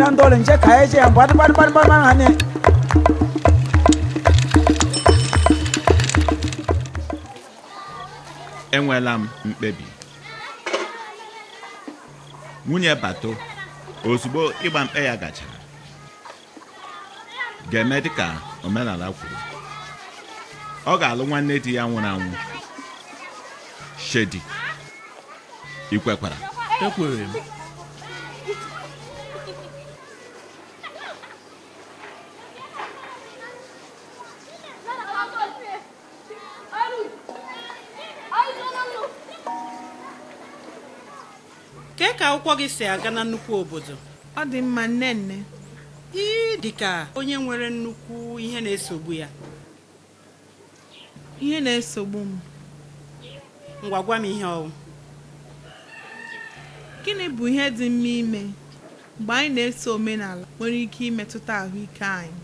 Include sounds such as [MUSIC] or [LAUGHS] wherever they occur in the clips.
na nje m mkpebi nwunye bato ozugbo ịgba mkpe ya gachara ga-eme dịka omenala kwuru ọ ga-alụ nwanne di ya nwụrụ anwụ shedi ikwekwara ekwere m kee ka akwụkwọ gị si aga na nnukwu obodo ọ dị mma nne. ị dị ka onye nwere nnukwu ihe na-esogbu ya ihe na-esogbu m ngwa gwa ihe ọwụ gịnị bụ ihe dị mma ime mgbe anyị na-eso omenala nwere ike imetụta ahụike anyị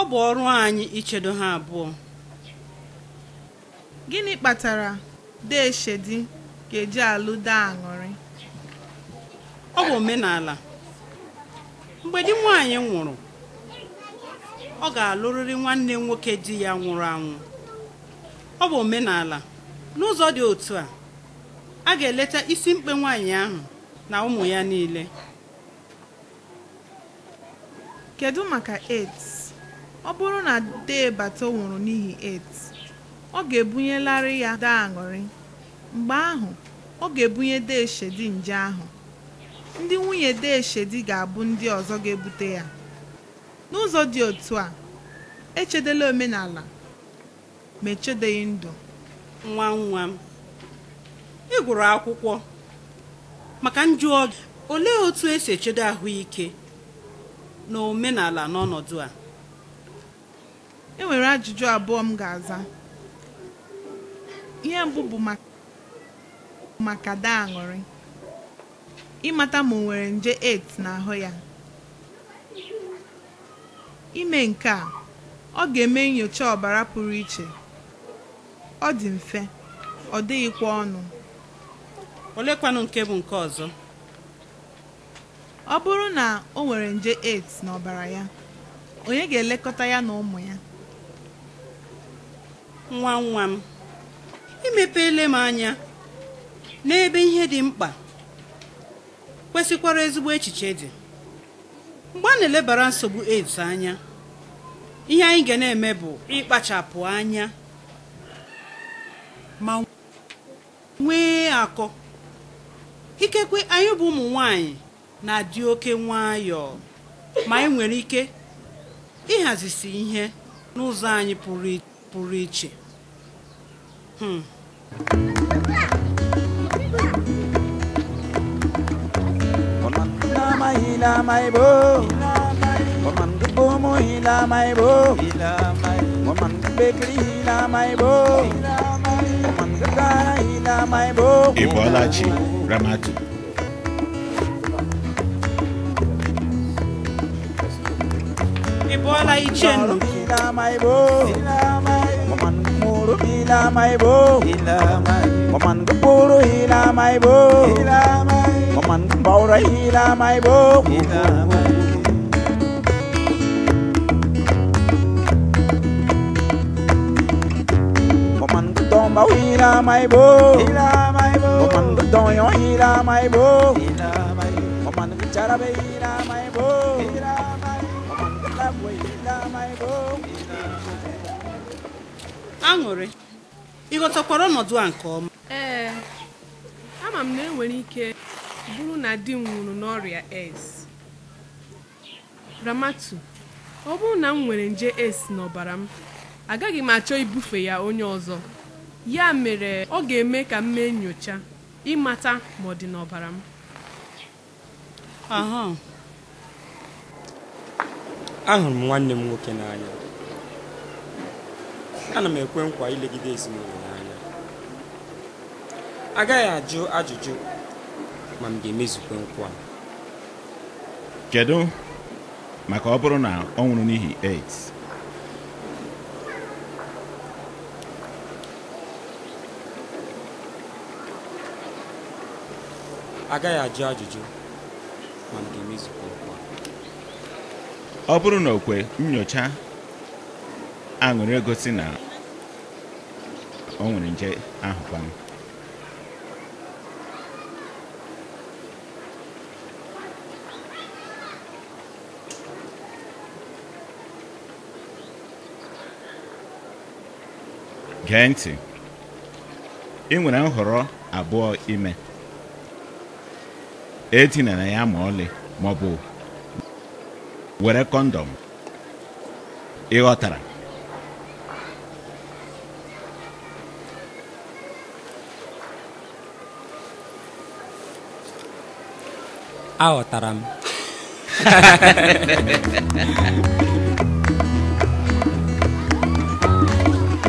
ọ bụ ọrụ anyị ichedo ha abụọ gịnị kpatara deshedi ga-eji alụ daa aṅụrị ọ bụ omenala mgbe di nwaanyị nwụrụ ọ ga-alụrịrị nwanne nwoke di ya nwụrụ anwụ ọ bụ omenala n'ụzọ dị otu a a ga-eleta isi mkpe nwaanyị ahụ na ụmụ ya niile kedu maka AIDS ọ bụrụ na dee bata nwụrụ n'ihi AIDS ọ ga-ebunyelarị ya daa aṅụrị mgbe ahụ ọ ga-ebunye Deshedi nje ahụ ndị nwunye Deshedi ga-abụ ndị ọzọ ga-ebute ya n'ụzọ dị otu a echedela omenala ma echedeghị ndụ nwa nwa m ị gụrụ akwụkwọ maka njụ oge olee otu esi echede ahụike na omenala n'ọnọdụ a enwere ajụjụ abụọ m ga-aza ihe mbụ maka daa aṅụrị ịmata ma o nwere nje AIDS n'ahụ ya ime nke a ọ ga-eme nyocha ọbara pụrụ iche ọ dị mfe ọ dịghịkwa ọnụ olekwanụ nke bụ nke ọzọ ọ bụrụ na o nwere nje AIDS n'ọbara ya onye ga-elekọta ya na ụmụ ya nwa nwa m imepele m anya n'ebe ihe dị mkpa kwesịkwara ezigbo echiche dị mgbe a na-elebara nsogbu AIDS anya ihe anyị ga na-eme bụ ịkpachapụ anya ma nwee akọ ikekwe anyị bụ ụmụ nwanyị na-adị oke nwayọọ ma anyị nwere ike ịhazisi ihe n'ụzọ anyị pụrụ iche hmm. mai ila mai bo một mình cứ bố mô ila mai bo một mình cứ bê kri ila mai bo một mình cứ ca ila mai bo Ibolaji Ramatu Ibola Ichenu Ila mai bo Ila mai bo Một mình cứ mô mai bo Ila mai bo Một mình cứ bố mai bo Ila mai man bao ra ila mai bo ila mai man don bao ila mai bo ila mai bo man don yo ila mai bo ila mai man chara be ila mai bo ila mai man la bo ila mai bo aṅụrị ịghọtakwara ọnọdụ a nke ọma ee ama m na enwere ike bụrụ na di m nwụrụ n'ọrịa AIDS Ramatu ọ bụrụ na m nwere nje AIDS n'ọbara m agaghị m achọ ibufe ya onye ọzọ ya mere ọ ga-eme ka m mee nyocha ịmata ma ọ dị n'ọbara m ahụrụ m nwanne m nwoke n'anya ana m ekwe nkwa ilegide ezinụlọ n'anya agaghị ajụ ajụjụ ma m ga-emezukwa nkwa kedu maka ọ bụrụ na ọ nwụrụ n'ihi AIDS agaghị ajụ ajụjụ ma m ga-emezukwa nkwa ọ bụrụ na okwe nyocha aṅụrị egosi na ọ nwere nje ahụ m gee ntị ị nwere nhọrọ abụọ ime etinara ya ma ọlị ma ọ bụ were kọndọm ịghọtara aghọtara m [LAUGHS]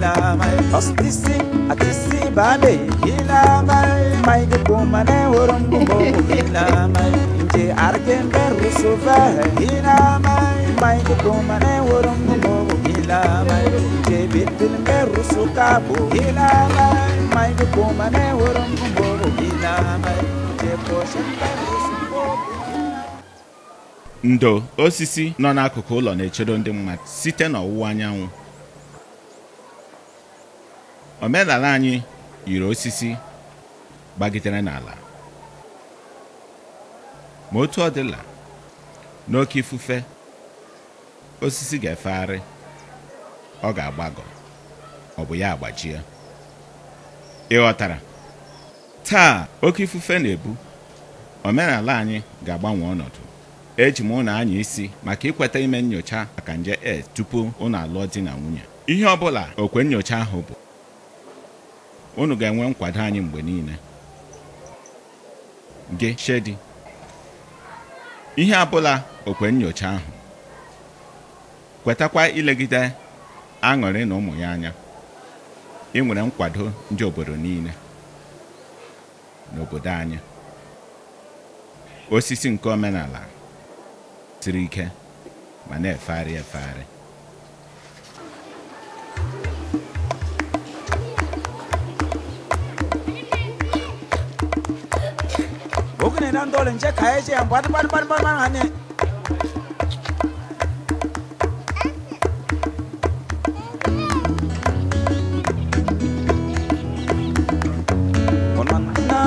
hila ndo osisi nọ n'akụkụ ụlọ na-echedo ndị mmadụ site n'ọwụwa anyanwụ omenala anyị yiri osisi gbagitere n'ala ma otu ọ dịla n'oke ifufe osisi ga-efegharị ọ ga-agbagọ ọ bụ ya agbajie ịghọtara taa oke ifufe na-ebu omenala anyị ga-agbanwe ọnọdụ eji m ụlọ anya isi maka ikweta ime nyocha maka nje AIDS e tupu ụnụ alụọ di na nwunye ihe ọ bụla okwe nyocha ahụ bụ unu ga-enwe nkwado anyị mgbe niile gị Shedi ihe abụla okwe nyocha ahụ kwetakwa ilegide aṅụrị na ụmụ ya anya ị nwere nkwado ndị obodo niile n'obodo anyị osisi nke omenala siri ike ma na-efegharị efegharị oge na ndole nje ka che yambwati ya mgbe pani pani ane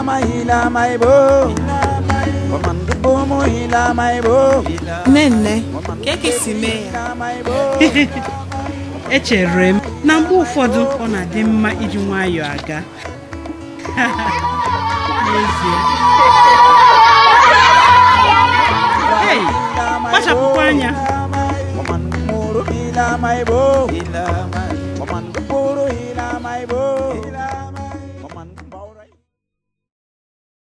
mahila nne. ka mee ya echere m na mgbe ụfọdụ ọ na-adị mma iji nwayọọ aga [LAUGHS] n'ezie Bible.